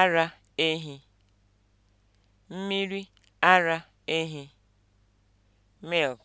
ara ehi, mmiri ara ehi (milk)